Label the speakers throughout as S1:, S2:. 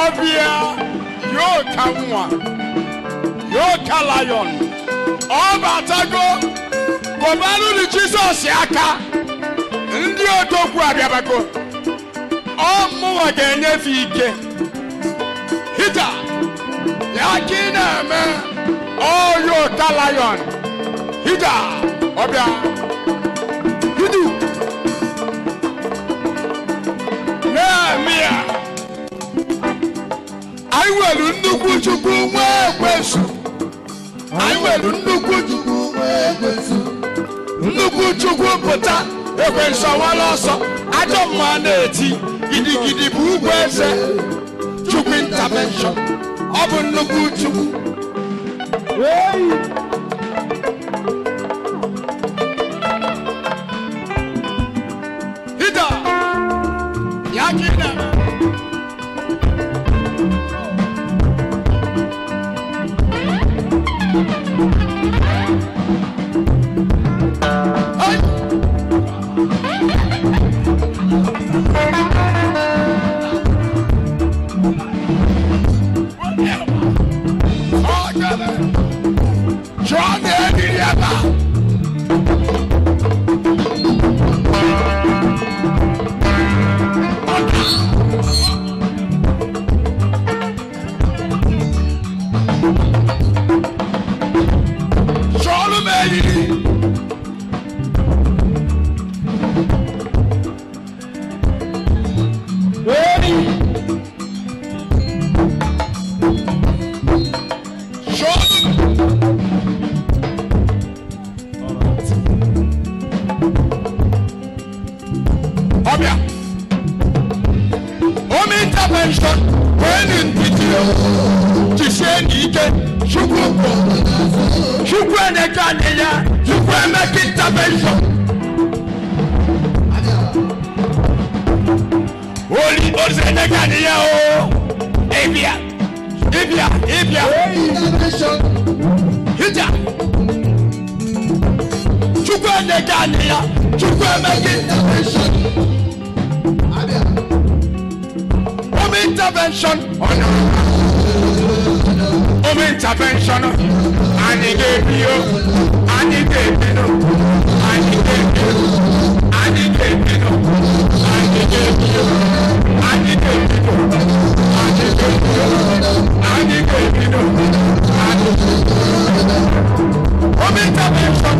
S1: ọbịa yoo ka nwa yoo ka lion ọ batago gọbanụ ni jesus aka ndị odogwu abịabago ọ mụwa ga-enyefe ike hita ya ka ị na-eme ọ yoo ka lion hita ọbịa anyị nwere nnukwu chukwu nwee ekwesu anyị nwere nnukwu chukwu nwee ekwesu nnukwu chukwu pụta ekwensu ọwala ọsọ ajọ mma na-eti gidigidi bụ ugwu eze chukwu intervention ọ bụ nnukwu chukwu chukwu na-eje anyị oli ozi emeka o ịbịa ịbịa ịbịa hija chukwu na-eje anyị ya intervention home intervention ọ home intervention anyị ga-ebio anyị ga-ebino anyị ga-ebio anyị ga-ebino anyị ga-ebio
S2: anyị ga-ebino anyị ga-ebio anyị ga-ebino anyị ga-ebino home intervention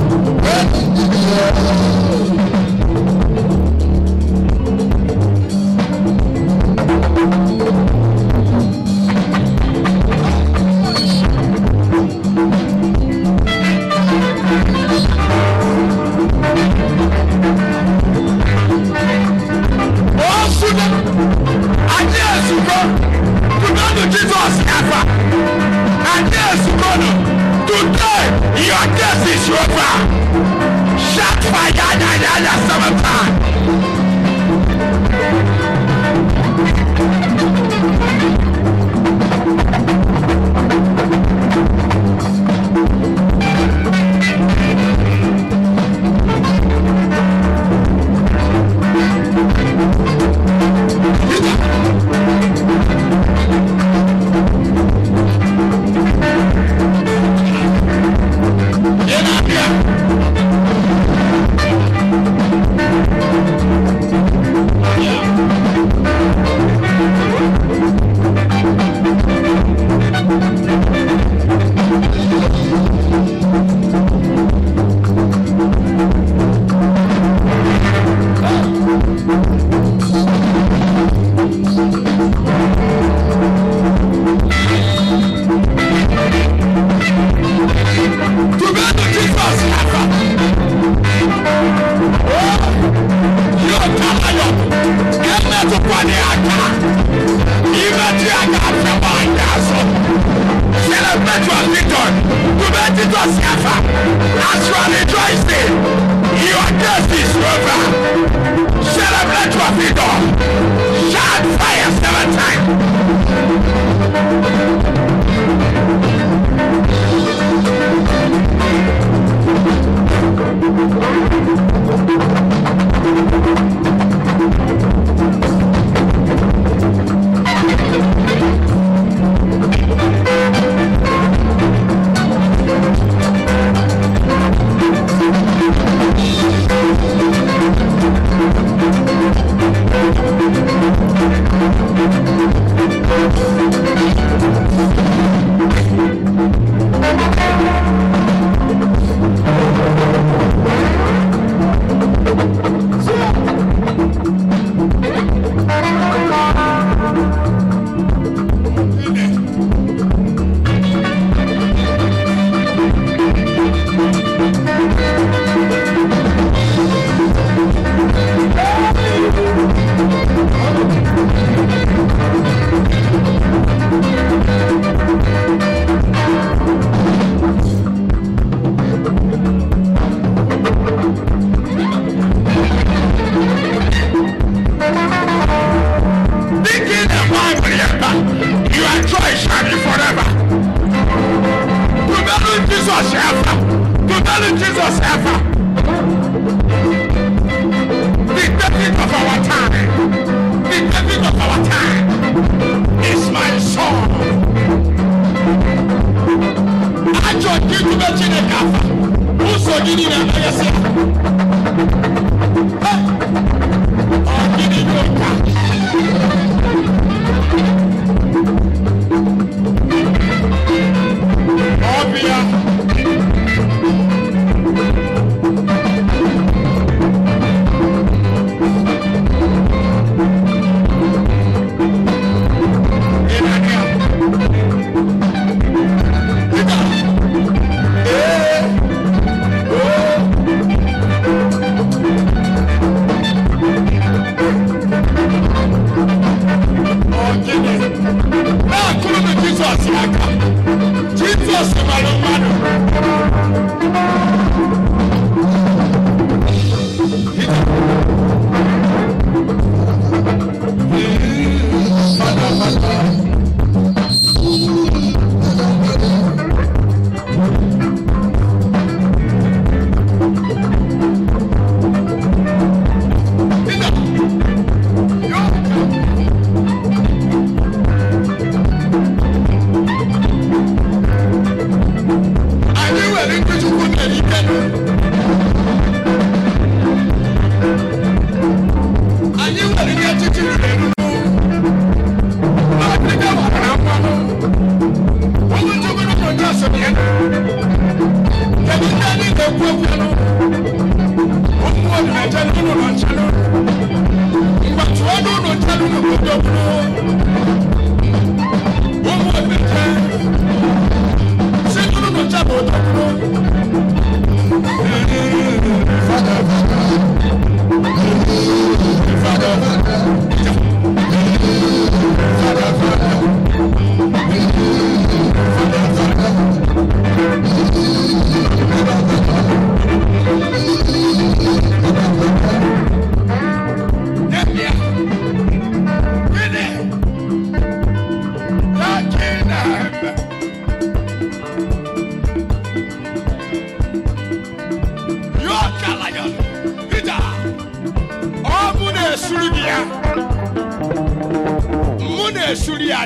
S1: na-esuri ya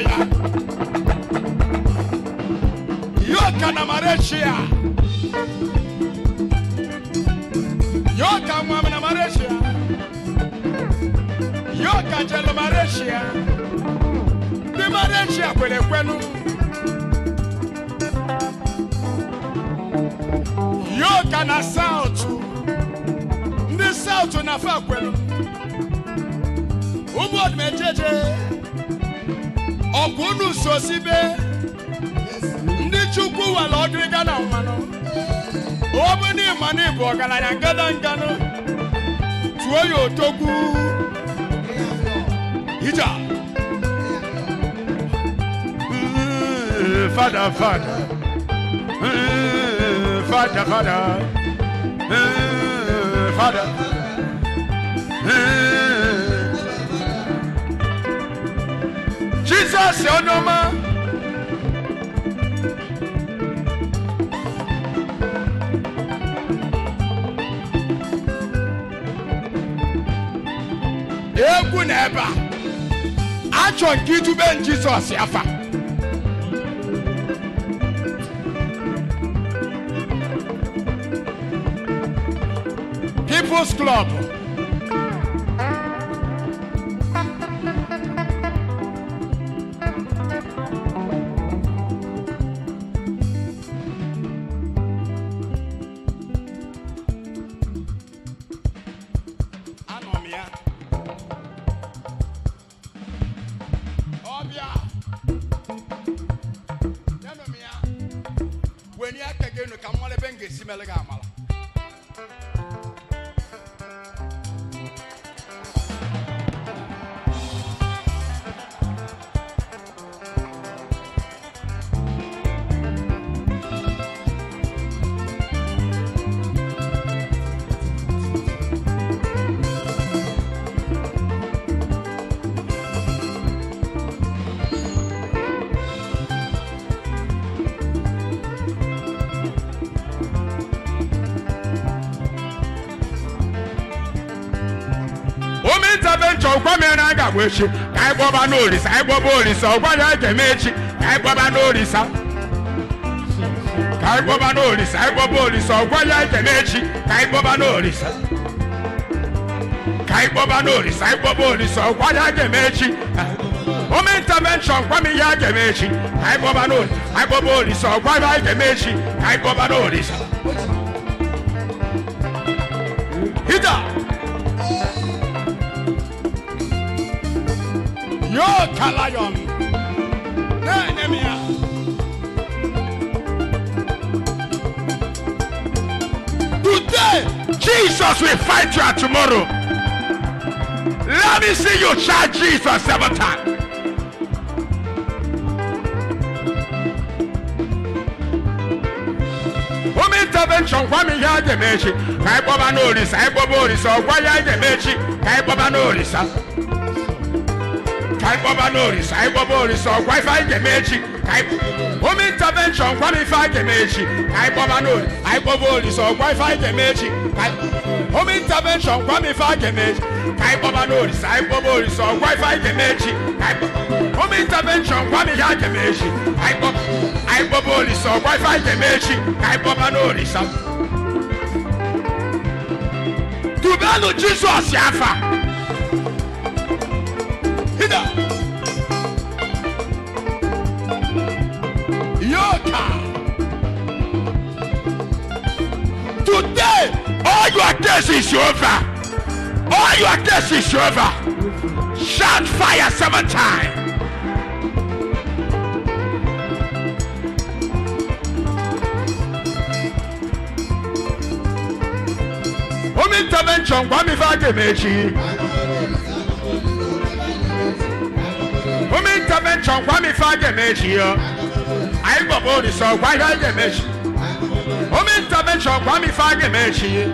S1: yoka na marechia yoka mwam na marechia yoka jelu marechia ndị marechia kwere kwenu! yoka na saụtụ ndị saụtụ na fa kwelu ụmụ ọdụmejeje ọ bụ unu sosibe ndị chukwu were ọdịga na mmanụ obụna ịmanụ bụ ọgaranya ngadanganụ tuo ya otogwu ija hmm, fada fada hmm, fada fada hmm, fada Jizọs onye ọma egwu na ebe a achọ nke idube Jizọs afa People's Club me legal. olisa ọgwa mere echi ka anyị n'orisa! n'olisa anyị gbọba ọgwa echi ka anyị n'orisa! ka anyị ya anyị echi ka anyị ya echi intervention gwa m a eme echi ka anyị n'orisa! n'olisa ya anyị echi ka anyị n'orisa! Yo Kalayon. Nehemiah. Today, Jesus will fight you tomorrow. Let me see you shout Jesus seven times. intervention gwa m ihe a ga ka anyị kpọba n'orisa anyị kpọba orisa ọgwa ya a ga-eme ka anyị kpọba n'orisa ka anyị kpọba n'orisa anyị kpọba orisa echi anyị home intervention kwam ife echi ka anyị kpọba n'orisa anyị kpọba orisa anyị echi home intervention kwam ife anyị echi ka anyị kpọba n'orisa anyị anyị echi home intervention kwam ihe echi anyị kpọba orisa ọkwa ife echi Shida. Yoka. Today, all your days is over. All your days is over. Shout fire seven times. Home intervention, Kwame Fagemechi. home intervention kwami fa anyị gbọbọ ihe jemechi home intervention kwami fa jemechi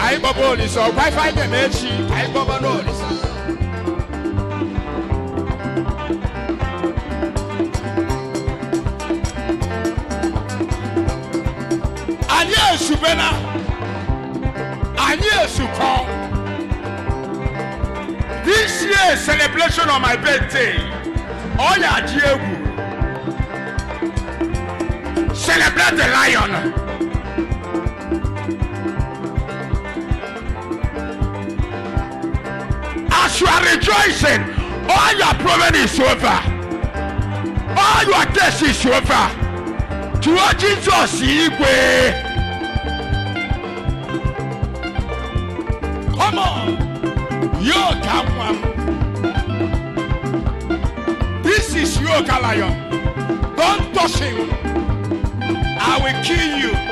S1: anyị gbọbọ orisa ife this year celebration of my birthday ọ ya egwu celebrate the lion as you are rejoicing all your problem is over all your test is over tụọ jesus igwe come on. yoke akwa m this is yoke lion don't touch him i will kill you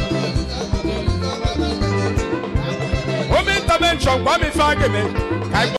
S1: Home intervention, Kwame Fageme.